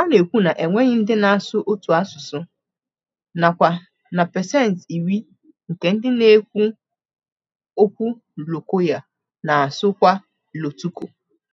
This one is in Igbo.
a na-ekwu na enweghị ndị na-asụ otu asụsụ nakwa na pasenti iri nke ndị na-ekwu okwu Lokoya na-asụkwa Lotuko